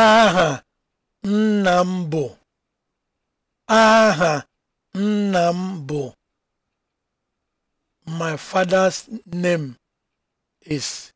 aha nna m bụ aha nna m bụ my father's name is